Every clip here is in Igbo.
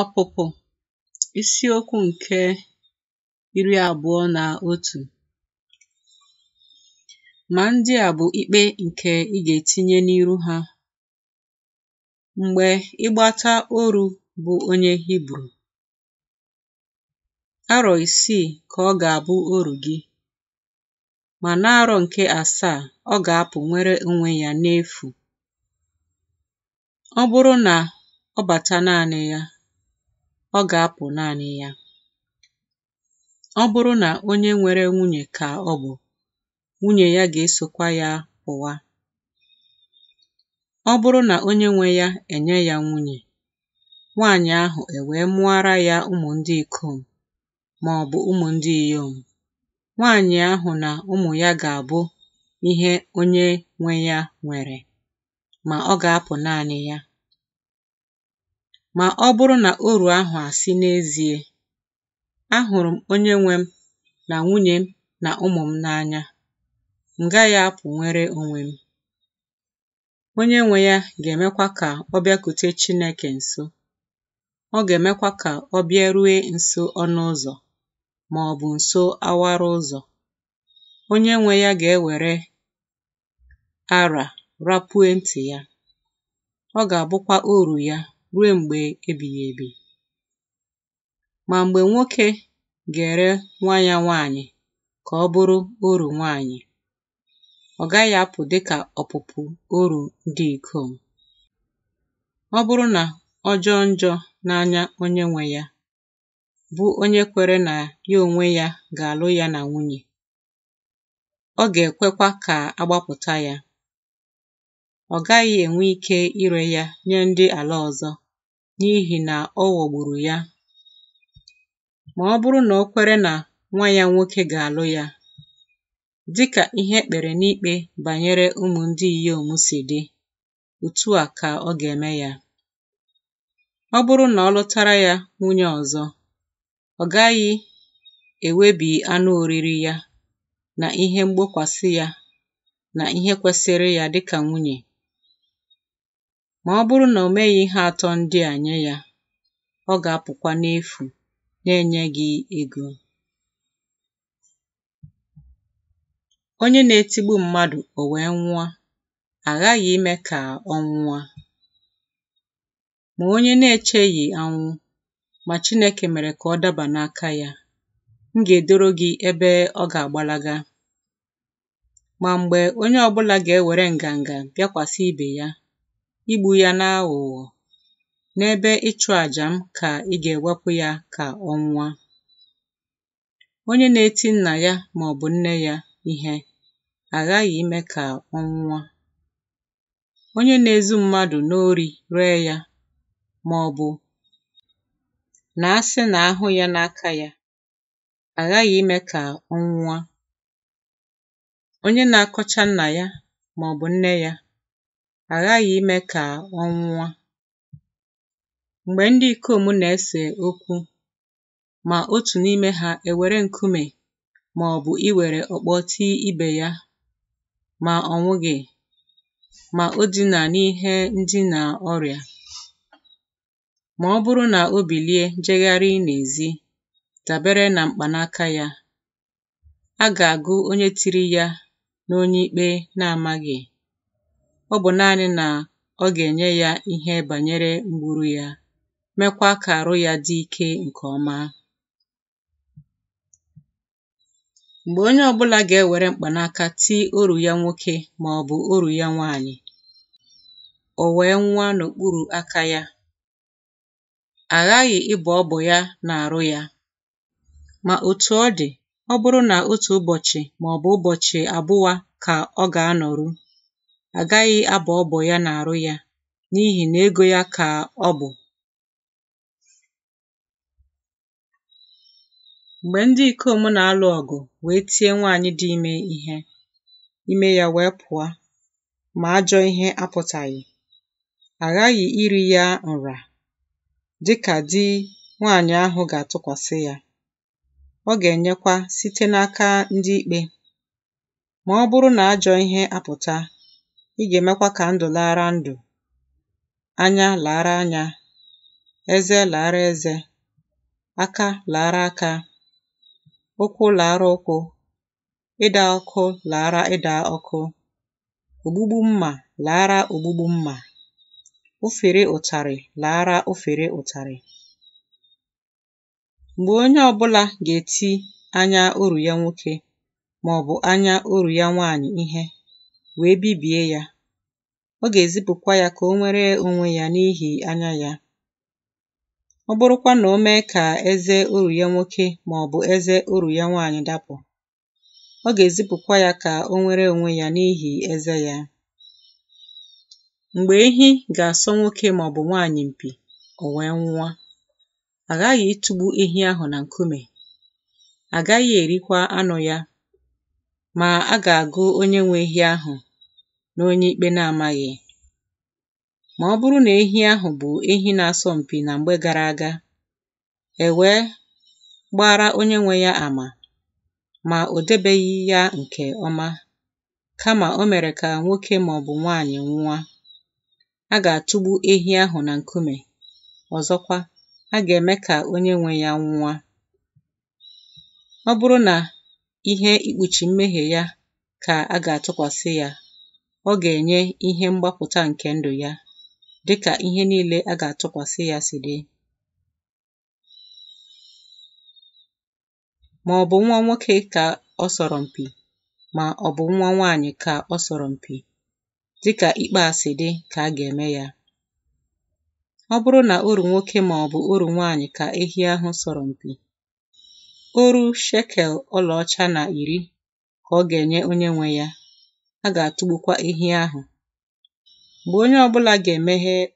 Ọpụpụ Isiokwu nke iri abụọ na otu. Ma ndị a bụ ikpe nke ị ga-etinye n'iru ha Mgbe ịgbata oru bụ onye Hibru. Arọ isii ka ọ ga-abụ oru gị, na n'arọ nke asaa ọ ga-apụ nwere onwe ya n'efu. Ọ bụrụ na ọ bata naanị ya, ọ ga-apụ naanị ya. Ọ bụrụ na onye nwere nwunye ka ọ bụ, nwunye ya ga-esokwa ya ụwa. Ọ bụrụ na onye nwe ya enye ya nwunye, nwaanyị ahụ ewee mụara ya ụmụ ndị ikom maọbụ ụmụ ndị inyom, nwaanyị ahụ na ụmụ ya ga-abụ ihe onye nwe ya nwere, ma ọ ga-apụ naanị ya. ma ọ bụrụ na oru ahụ asị n'ezie ahụrụ m onye nwe m na nwunye m na ụmụ m n'anya m gaghị nwere onwe m onye nwe ya ga-emekwa ka ọ bịakute Chineke nso ọ ga-emekwa ka ọ bịarue nso ọnụ ụzọ ma ọ nso awara ụzọ onye nwe ya ga-ewere ara rapue ntị ya ọ ga-abụkwa oru ya ruo mgbe ebighị ebi ma mgbe nwoke ga-ere nwa ya nwaanyị ka ọ bụrụ oru nwanyị, ọ gaghị apụ dịka ọpụpụ oru ndị ikom ọ bụrụ na ọ jọọ njọ n'anya onye nwe ya bụ onye kwere na ya onwe ya ga-alụ ya na nwunye ọ ga-ekwekwa ka agbapụta ya ọ gaghị enwe ike ire ya nye ndị ala ọzọ N'ihi na ọ ghọgburu ya ma ọ bụrụ na o kwere na nwa ya nwoke ga-alụ ya dịka ihe ekpere n'ikpe banyere ụmụ ndị inyom si dị otu a ka ọ ga-eme ya ọ bụrụ na ọ lụtara ya nwunye ọzọ, ọ gaghị ewebi anụ oriri ya na ihe mgbokwasị ya na ihe kwesịrị ya dịka nwunye. Ma ọ bụrụ na o meghị ihe atọ ndị a nye ya, ọ ga-apụkwa n'efu na-enye gị ego. Onye na-etigbu mmadụ o wee nwụọ, aghaghị ime ka ọ nwụọ. Ma onye na-echeghị anwụ, ma Chineke mere ka ọ daba n'aka ya, m ga-edoro gị ebe ọ ga-agbalaga. Ma mgbe onye ọ bụla ga-ewere nganga bịakwasị ibe ya Igbu ya n'aghụghọ n'ebe ịchụ àjà m ka ị ga ewepụ ya ka ọ onye na-eti nna ya maọbụ nne ya ihe aghaghị ime ka ọ onye na-ezu mmadụ n'ori ree ya ọ na na sị na ahụ ya n'aka ya aghaghị ime ka ọ onye na-akọcha nna ya maọbụ nne ya aghaghị ime ka ọ nwụọ. Mgbe ndị ikom na-ese okwu, ma otu n'ime ha ewere nkume ma ọ bụ iwere ọkpọ tii ibe ya, ma ọ nwụghị, ma o dina n'ihe ndina ọrịa, ma ọ bụrụ na o bilie jegharị n'ezi dabere na mkpanaka ya, a ga-agụ onye tiri ya n'onye ikpe na-amaghị. ọ bụ naanị na ọ ga-enye ya ihe banyere mgburu ya, mekwa ka arụ ya dị ike nke ọma Mgbe onye ọbụlà gà-ewère mkpanaka tii orù ya nwoke màọ̀bụ̀ orù ya nwaànyị̀ ò wèe nwa n'òkpuru̇ aka ya, àghaghị̀ ịbọ̀ ọbọ̀ ya n'àrụ ya, ma otu ọ dị̀ ọ bụrụ nà otù ụbọ̀chị̀ màọ̀bụ̀ ụbọ̀chị̀ àbụwa kà ọ gà-anọ̀rụ agaghị abọ ọbọ ya na arụ ya n'ihi na ego ya ka ọ bụ mgbe ndị ikom na-alụ ọgụ wee tie nwaanyị dị ime ihe ime ya wee pụọ ma ajọ ihe apụtaghị aghaghị iri ya nra dịka di nwaanyị ahụ ga-atụkwasị ya ọ ga-enyekwa site n'aka ndị ikpe ma ọ bụrụ na ajọ ihe apụta ị ga-emekwa ka ndụ laara ndụ, anya lara anya eze lara eze aka lara aka ụkwụ lara ụkwụ ịda ọkụ lara ịda ọkụ ogbugbu mma lara ogbugbu mma, ofere ụtarị lara ụfere ụtarị. Mgbe onye ọ bụla ga-eti anya uru ya nwoke ma ọ bụ anya uru ya nwanyị ihe wee bibie ya ọ ga-ezipụkwa ya ka o nwere onwe ya n'ihi anya ya ọ bụrụkwa na o mee ka eze uru ya nwoke bụ eze uru ya nwanyị dapụ ọ ga-ezipụkwa ya ka o nwere onwe ya n'ihi eze ya mgbe ehi ga-asọ nwoke bụ nwanyị mpi, o wee nwụọ àghaghị ịtụgbu ehi ahụ na nkume agaghị erikwa anụ ya ma a ga-agụ onye nwe ehi ahụ na onye ikpe na-amaghị ma ọ bụrụ na ehi ahụ bụ ehi na-asọ mpi na mgbe gara aga e wee gbaara onye nwe ya ama ma o debeghị ya nke ọma kama o mere ka nwoke maọbụ nwanyị nwụọ a ga-atụgbu ehi ahụ na nkume ọzọkwa a ga-eme ka onye nwe ya nwụọ ọ bụrụ na ihe ikpuchi mmehie ya ka a ga-atụkwasị ya ọ ga-enye ihe mgbapụta nke ndụ ya dịka ihe niile a ga-atụkwasị ya si dị ma ọ bụ nwa nwoke ka ọ sọrọ mpi ma ọ bụ nwa nwaanyị ka ọ sọrọ mpi dịka ikpe a si dị ka a ga-eme ya ọ bụrụ na oru nwoke ma ọ bụ oru nwaanyị ka ehi ahụ sọrọ mpi oru shekel ọlaọcha na iri ka ọ ga-enye onye nwe ya a ga àtụgbukwa ehi ahụ mgbe onye ga ọbụlà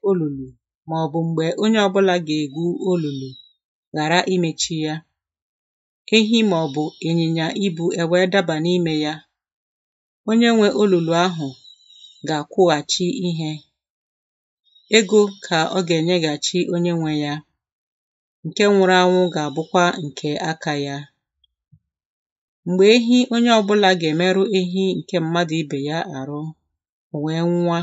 olulu ma ọ bụ mgbe onye ọbụlà gà-ègwu olùlù ghàra imechi ya, ehi màọ̀bụ̀ ibu ibū e wee dabà n'ime ya, onye nwe olulu ahụ ga àkwụghàchi ihe. Ego ka ọ gà-ènyeghàchi onye nwe ya, nke nwụrụ anwụ ga àbụkwa ǹkè akā ya. Mgbe ehi onye ọbụlà ga-emerụ ehi nke mmadụ ibe ya àrụ wee nwa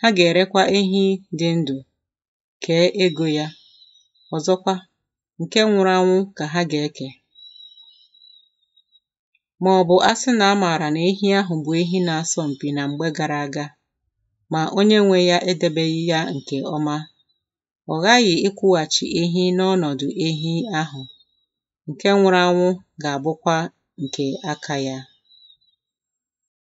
ha ga-erekwa ehi dị ndụ, kee ego ya ọzọkwa, nke nwụrụ anwụ ka ha gà-ekè màọ̀bụ̀ a sị nà a mààrà na ehi ahụ bụ̀ ehi na-asọ m̀pì nà m̀gbe gara aga, ma onye nwe ya edebeghị ya nke ọma ọ ghaghị̀ ịkwụghachi ehi n'ọnọ̀dụ̀ ehi ahụ̀ nke nwụrụ anwụ ga abụkwa nke aka ya